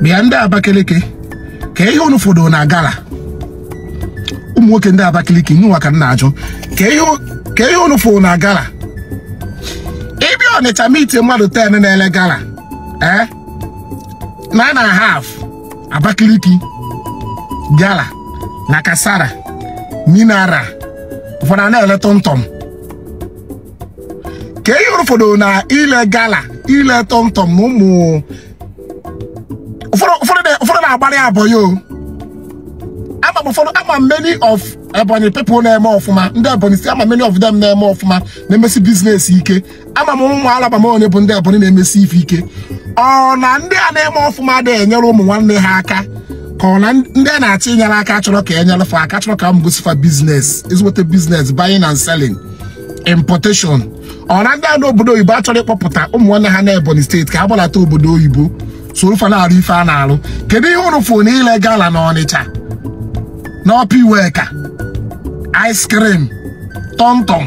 bịa ndị Abakaliki ka ihe unu fọdụ na gala ụmụ nwoke ndị Abakaliki nwa ka m na-ajụ ka ihe unu fọdụ na gala ịbịa Ọnịcha miti mmadụ ten na-ele gala ee eh? na na half Abakaliki gala na kasara minara ụfọdụ na-ele tọmtọm ka ihe unu fọdụ na ile gala ile tọmtọm na ụmụ abụ ama m ama many of Ebonyi people na-eme ọfụma ndị Ebonyi si ama many of them na-eme ọfụma na-emesi biznes ike ama m ụmụ alaba m onye bụ ndị Ebonyi na-emesi ife ike ọ na ndị a na-eme ọfụma na-enyere ụmụ nwanne ha aka ka ọ na ndị a na-achọ inyere aka chọrọ ka enyere fa aka chọrọ ka m gosifa biznes ezigbote biznes bayin and seling importation ọ na ndị a na obodo oyibo achọrọ ịkpọpụta ụmụ nwanne ha na Ebonyi steeti ka ha gbalata obodo oyibo sorofa na-arụ ife a na-alụ kedu ihe ụrụ fụ na ile gala na Ọnịcha n'ọpa iweka ice cream tọmtọm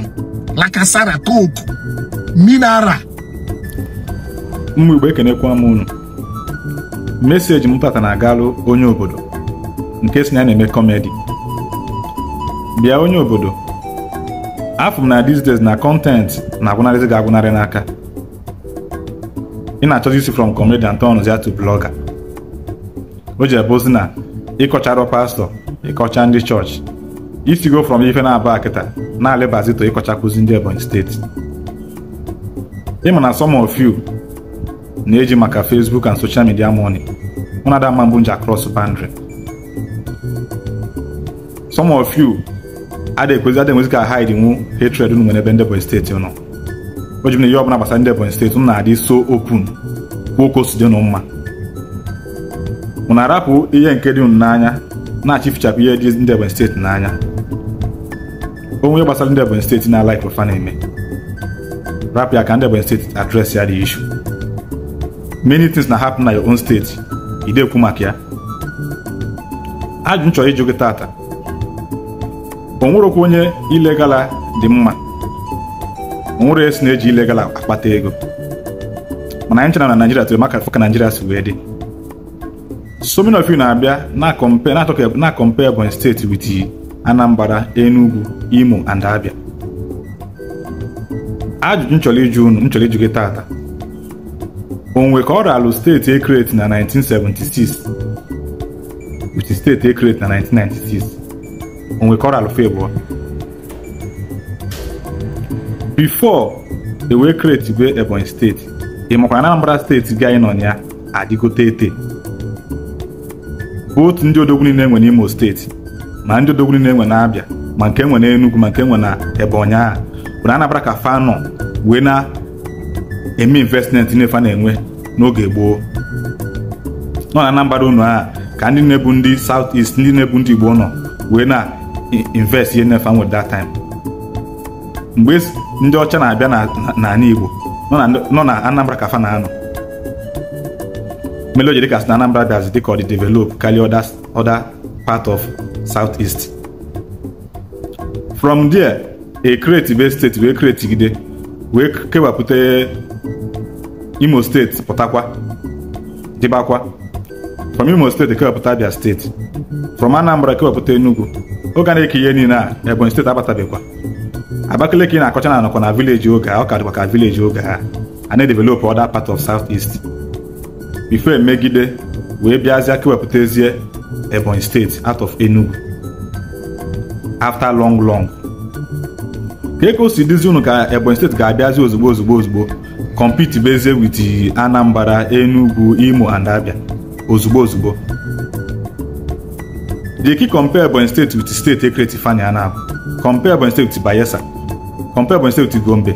lakasara coke mineral ụmụ Igbo ekenekwa m unu meseji m pata na agalụ onye obodo nke si na na-eme kọmedi bịa onye obodo afọ m na these na kọntentị na-agwụnarịzi ga agwụnarị n'aka ị na-achọzi isi from comedian turns ya to blogger o ji ebozi na ịkọcharụ pastọ ịkọcha ndị chọọchị go from ife na abụ akịta na-alịbazito ịkọchakwuzi ndị Ebonyi steeti ịma na some of you na-eji maka Facebook and social media money ụna Ada mma mbụ nji across boundary some of you adịghị ekwezi adịghị enwezi ka hide nwu hatred nwere ebe ndị Ebonyi steeti nọ o ji na ihe ọbụla gbasara ndị Ebonyi steeti m na-adị so open kwuo si dị mma mụ na-arapụ ihe nke dị n'anya na-achịfichapụ ihe dị ndị Ebonyi steeti n'anya onwe gbasara ndị Ebonyi steeti na alaik ofa na-eme rapụ ya ka ndị Ebonyi steeti adres ya dị ishu many things na hapụ na your own steeti ị dekwu maka ya ajụ m chọrọ ịjụ gị tata o nwerokwa onye ilegala dị mma nwere esi na-eji ilegal akpata ego mana anyị chọrọ na Naijiria tụrụ maka afọ ka Naijiria si wee dị so of na-abịa na-akọmpe Ebonyi steeti with Anambra Enugu Imo and Abia ajụjụ nchọrọ ịjụ unu nchọrọ ịjụ gị taata. onwe ka ọ ralụ steeti Ekret na 1976 steeti ekreti na 1996 onwe ka ọ ralụ before e wee kreti Ebonyi steeti ị makwa Anambra steeti gị anyị nọ ya adịgote ete otu ndị odogwu niile enwe n'Imo steeti ma ndị odogwu niile enwe na ma nke enwe Enugu ma nke enwe na Ebonyi a bụ na Anambra ka fa wee na-eme investment nefa na-enwe n'oge gboo nọ na Anambra unu a ka ndị na-ebu ndị South East ndị na-ebu ndị Igbo nọ wee na invest ihe nefa nwere that time ndị ọcha na-abịa n'ala Igbo nọ na Anambra ka fa na-anọ melo jiri kasi na Anambra bịazi dịka ọ dị develop oda oda part of South East from there a e create Ibe steeti wee create Gide wee kewapụta Imo steeti pụtakwa dịbakwa from Imo steeti kewapụta Abia steeti from Anambra kewapụta Enugu oge a na-eke ihe niile a Ebonyi steeti abatabeghịkwa Abakaliki na-akọcha na anọkọ na vileji oge a ọ ka dịkwa ka vileji oge a a na-edevelopụ other part of South East bifo emegide wee bịazịa kewepụtazie Ebonyi steeti out of Enugu after long long ka eke si dịzi unu ka Ebonyi steeti ga-abịazi ozugbo ozugbo ozugbo compete bezie with Anambra Enugu Imo and Abia ozugbo ozugbo dị ki compare Ebonyi steeti with steeti ekreti fanya compare Ebonyi steeti Bayelsa compare Ebonyi State with Gombe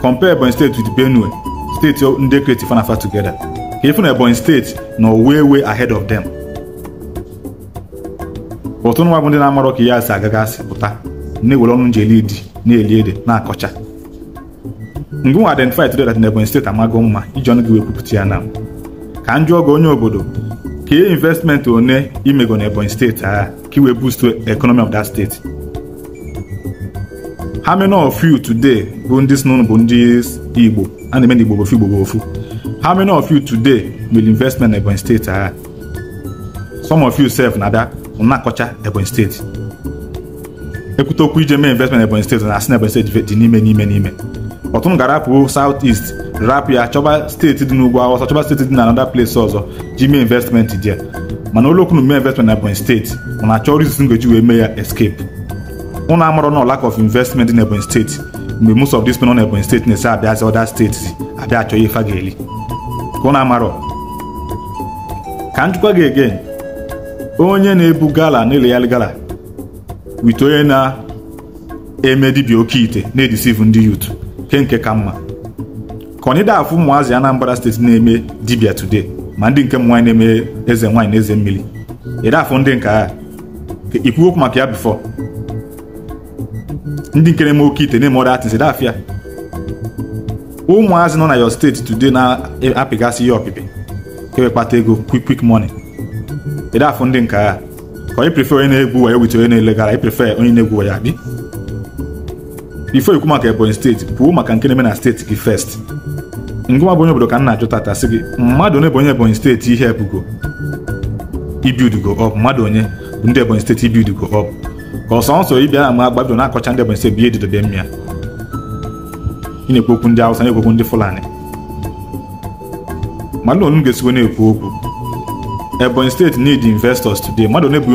compare Ebonyi State with Benue steeti ndị kreti fanafa together ka ifu na Ebonyi State nọ way way ahead of them ụtụ nwa bụ ndị na-amarọ ka ya asị agagasị pụta na-ewere ọnụ nji eli di na-eli ede na-akọcha mgbe nwa identify today that na Ebonyi State amago mma iji ọnụ gị wee kwupụta ya na ka njụ oge onye obodo ka investment one imego na Ebonyi state agha ka iwee boost economy of that state how many of you today bụ ndị sinụnụ bụ ndị igbo a na-eme na igbo bofu igbo bofu how many of you today will investment na ebonyi steeti agha some of you sef na ada na-akọcha ebonyi steeti ekwute okwu ije mee investment ebonyi steeti na asị na ebonyi steeti dị n'ime n'ime n'ime m ga-arapụ south east rapụ ya chọba steeti dị n'ugwu awụsa chọba steeti dị na another place ọzọ ji mee investment dị mana ụlọokwu na mee investment na ebonyi steeti mana achọ rizin ngoji wee mee ya escape ụnụ amarọ na lack of investment dị n'Ebonyi steeti mgbe most of these people nọ n'Ebonyi steeti na abịa abịazi other steeti abịa achọ ihe fa ga-eli ụnụ amarọ ka njikwa gị again onye na-ebu gala na-eleghari gala wit onye na-eme dibia oke ite na-edisivu ndị yut ke nke ka mma ka onye afụ ụmụazị Anambra steeti na-eme dibia today ma ndị nke m nwaanyị na-eme eze nwaanyị na eze mmiri ịdafụ ndị nke agha ikwuokwu maka ya bifo ndị nkere m eme oke ite na-eme ọda atịnsị dafịa ụmụazị nọ na yo steeti today na-apịgasị ihe ọpịpị kewe kpata ego quick quick money afọ ndị nka agha ka onye prefer onye na-egwu wayo wit onye na-elegara ị prefer onye na-egwu wayo adị bifo ikwu maka ebonyi steeti pụọ maka nke na-eme na steeti gị first ngụma bụ onye obodo ka m na-ajụ tata sị gị mmadụ onye bụ onye ebonyi steeti ihe ebugo ibiudugo ọ. mmadụ onye bụ ndị ebonyi steeti ibiudugo ọb ka ọsọ nsọ ibi a ma agbabido na-akọcha ndị Ebonyi si bi edidobe mmịa ị na-ekwu okwu ndị awụsa na-ekwu okwu ndị Fulani mmadụ onu ga-esikwa na-ekwu okwu Ebonyi steeti need investors today mmadụ one bụ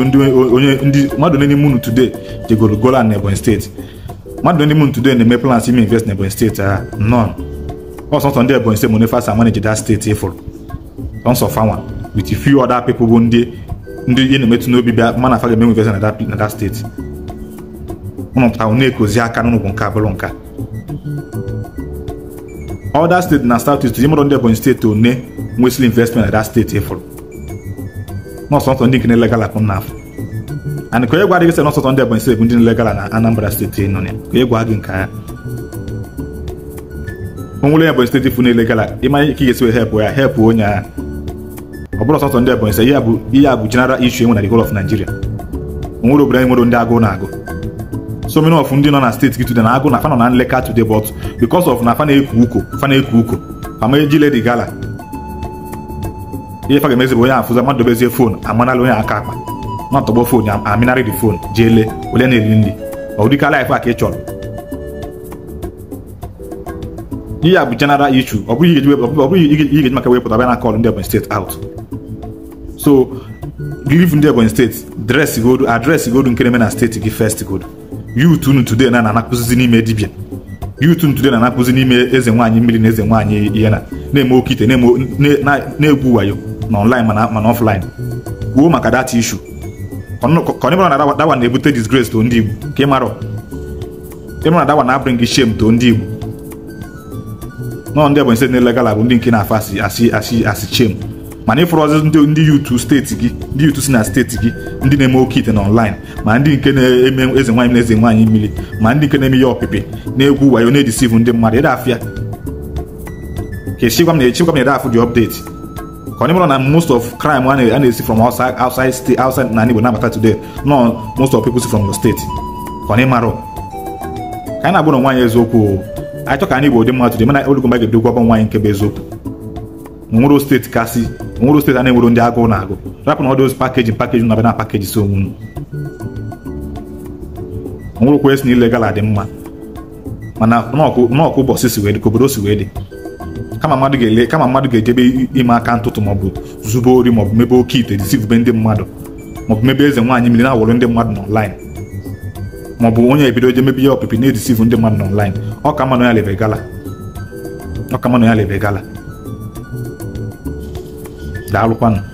onye ndị mmadụ one n'ime unu today jegoro gola na Ebonyi steeti mmadụ one n'ime unu today na-eme plans ime invest na Ebonyi steeti a ah, nọn ọsọ nsọ ndị Ebonyi steeti monefasa manage that steeti ịfụrụ ọsọ fawa with few other people bụ ndị ndị ihe na-emetụ n'obi bịa mana afa ga-eme nwevezi na dat steeti ụnụ pụta na-ekozi aka n'ụnụ bụ nka bụrụ nka ọda steeti na South East mụrụ ndị Ebonyi steeti one nwesịrị investment na dat steeti ịfụrụ nọsọtọ ndị nke na-elegala akụ na afọ and ka onye gwa gị sị nọsọtọ ndị Ebonyi steeti bụ ndị na na Anambra steeti nọ ya ka onye gwa gị nke ya o nwere Ebonyi steeti fụ na-elegala ịmanya ike ga-esi wee hepụ ya hepụ onye agha ọ bụrụ ọsọsọ ndị Ebonyi sị ihe a bụ jenara issue enwe na the whole of Nigeria onwere obodo anyị nwere ndị agụ na-agụ so many of ndị nọ na steeti gị today na agụ na fanọ na nleka today but because of na fana eku uko fana eku uko ama eji ledi gala ihe faga ga-emezi bụ onye afụza mmadụ dobezie fon amanala onye aka akpa na ọtọgbọ fon aminarị dị fon jee lee ole na-eri nri ọ dịka laịf a ka ị chọrọ ihe a bụ general issue ọ bụghị ihe ga-eji maka wepụta bịa na kọl ndị Ebonyi steeti out so leave ndị Ebonyi steeti dresị godu adresị godu nke na steeti gị fest godu youth unu today na anakụzizi n'ime dibia youth unu today na anakụzi n'ime eze nwaanyị mmiri na eze nwaanyị ihe na na-eme oke ite na-egwu wayo na online mana offline kwuo maka that issue ka ọ bụrụ na dawa na-ebute disgrace to ndị Igbo ka ị mara ịbụrụ na dawa na-abụrụ gị to ndị Igbo nọ ndị Ebonyi steeti na-elegala bụ ndị nke na-afọ asị asị asị asị mana ịfụrụ ọzọ ndị yutu steeti gị ndị yutu si na steeti gị ndị na-eme oke ite na ma ndị nke na-eme eze nwaanyị na eze nwaanyị mmiri ma ndị nke na-eme ya ọpịpị na-egwu wayo na-edisivu ndị mmadụ ịda afịa ka echikwa m na echikwa m na afụ dị ọpdeti ka na most of crime a na-esi from outside state outside na Igbo na-abata today no most of people si from the state ka onye eziokwu anyị chọ ka anyị Igbo dị mana ga nke bụ eziokwu nwere steeti kasị nwere steeti a na-enwero ndị agụụ na agụ rapụ na ọ dị ozi pakeji pakeji na bana pakeji so onwe nwere okwu esi na ile gala dị mma mana n'ọkụ ụbọchị si wee dị ka obodo si wee dị kama mmadụ ga-ele kama mmadụ ga-ejebe ime aka ntụtụ maọbụ zube ori maọbụ mebe oke ite disivube ndị mmadụ maọbụ mebe eze nwaanyị mmiri na-awụrụ ndị mmadụ n'ọnlaịn maọbụ onye ebido je mebe ya ọpịpị na-edisivu ndị mmadụ n'ọnlaịn ọ ka mma na ya lebe ọ ka mma ya lebe gala đạo lục quanh